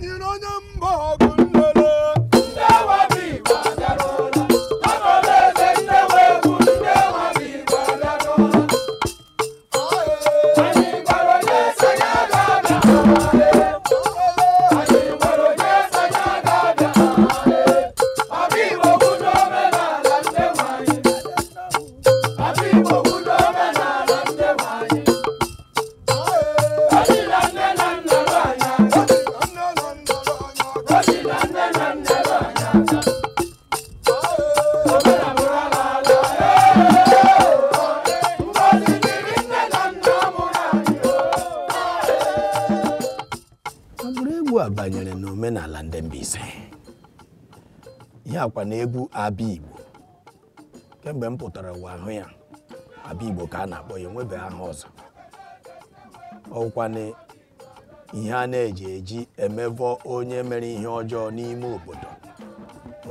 많은 어는 먹을 a banyere n'omenala ndị Mbaise ya kwa na egwu Abigbo kemgbe m pụtara ụwa ahụ ya Abigbo ka a na-akpọ ya enwebe aha ọzọ ọkwa na ihe a na-eji eji emevọ onye mere ihe ọjọọ n'ime obodo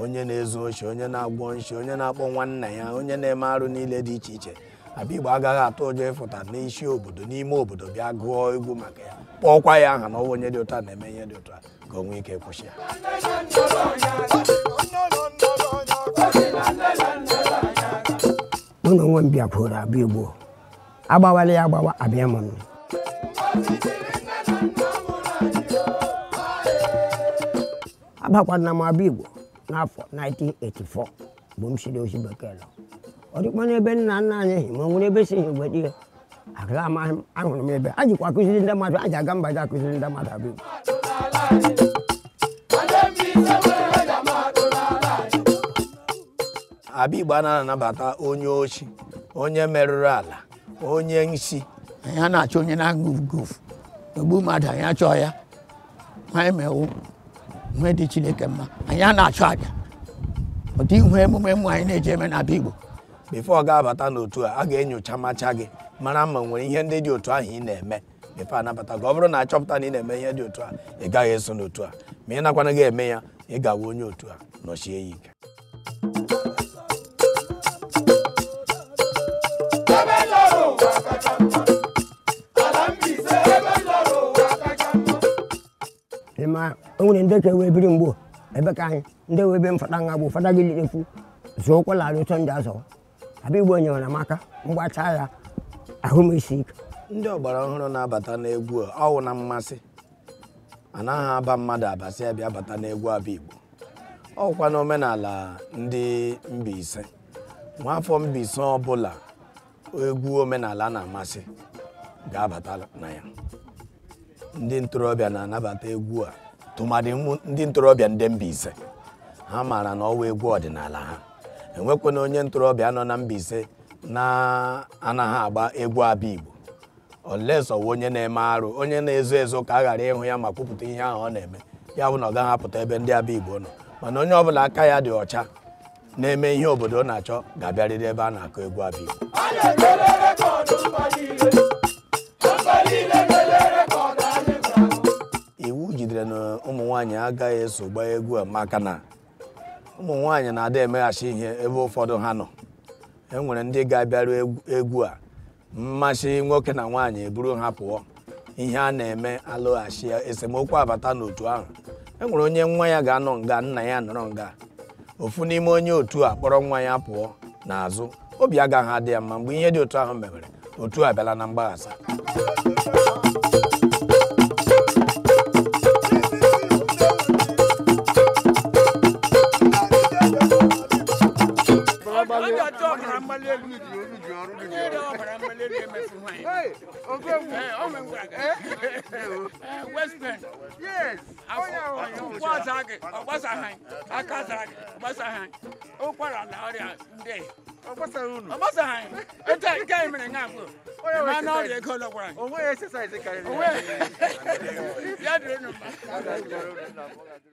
onye na-ezu oshi onye na-agwọ nshi onye na-akpọ nwanna ya onye na-eme arụ niile dị iche iche Abigbo agaghị atụ ụjọ ịfụta n'isi obodo n'ime obodo bịa gụọ egwu maka ya kpọọkwa ya aha na ọwa onye dị ụtọ na-eme ihe dị ụtọ ka o nwee ike kwụsị ya mụ na onwe m bịakwuoro Abigbo agbawala ya agbawa abịa m agbakwana m Abigbo n'afọ 1984 bụ m siri ozi bekee nọ. ọ dịkwa n'ebe nna nna anyị ehi ma ọ nwere ebe e si ihe mgbe di m ahụrụ m ebe a jikwa akụziri ndị mmadụ a ji aga mba ji akụziri ndị mmadụ abụ Abigbo a na-anabata onye ochi onye merụrụ ala onye nsi anyị na-achọ onye na-aṅụ ugofu ogbu mmadụ anyị achọ ya nwa e mewu nwe dị Chineke mma anyị a na-achọ aja ụdị ihu emume mmụ anyị na-eji eme na igbo bifo ọ ga-abata n'otu a a ga-enyocha macha gị mara ma nwere ihe ndị dị otu ahụ ị na-eme bifo anabata gị ọ bụrụ na achọpụta na ị na-eme ihe dị otu a ị gaghị eso n'otu a ma ị nakwana gị eme ya ị gawa onye otu a nọchie ya ike ma o nwere ndị ka e wee biri mgbo ebe ka anyị ndị wee be mfada nha bụ fada gị lirekwu zụọ ụkwụ larị ụtọ ndị azọ abịa igbo nyere mgbacha ya ahụ m isi ike ndị ọgbara ọhụrụ na-abata n'egwu ọwụ na mmasị anaghị aba mmadụ abasị abịa bata n'egwu abịa igbo ọkwa omenala ndị Mbaise nwaafọ Mbaise ọbụla egwu omenala na-amasị ga-abata na ya ndị ntorobịa na-anabata egwu a tụmadị ndị ntorobịa ndị Mbaise ha maara na ọwa egwu ọdịnala ha enwekwana onye ntorobịa nọ na Mbaise na-anaghị agba egwu abịa Igbo olesọ wụ onye na-eme arụ onye na-ezo ezo ka a ghara ịhụ ya ma kwupụta ihe ahụ ọ na-eme ya bụ na ọ gaghị apụta ebe ndị abịa Igbo nọ mana onye ọbụla aka ya dị ọcha na-eme ihe obodo ọ na-achọ ga-abịarịrị ebe a na-akụ egwu abịa Igbo iwu jidere na ụmụ nwaanyị agaghị eso gbaa egwu Amaka maka na ụmụ nwaanyị na-ada emeghachi ihe ebe ụfọdụ ha nọ e nwere ndị ga-abịaru egwu a mmasị nwoke na nwaanyị eburu ha pụọ ihe a na-eme alụghachi esemokwu abata n'otu ahụ e nwere onye nwa ya ga-anọ nga nna ya nọrọ nga ofu n'ime onye otu a kpọrọ nwa ya pụọ n'azụ obi agaghị adị ya mma mgbe ihe dị otu ahụ mewere otu a bịala na mgbaghasa ọbara mgbali elu ji olu ji ọrụ dị ji ọbara mgbali elu emefu nwanyị oge wu ọmụ ngwa west bend yes akwụkwọ ọza gị ọgbasagha aka zara gị ọgbasagha ụkwara na ọrịa ndị ọgbasara unu ọgbasagha ete nke anyị mere nga abụọ ma na ọrịa ego lọgwara anyị onwe ya esesa ezi karịrị ya dịrị nụ mma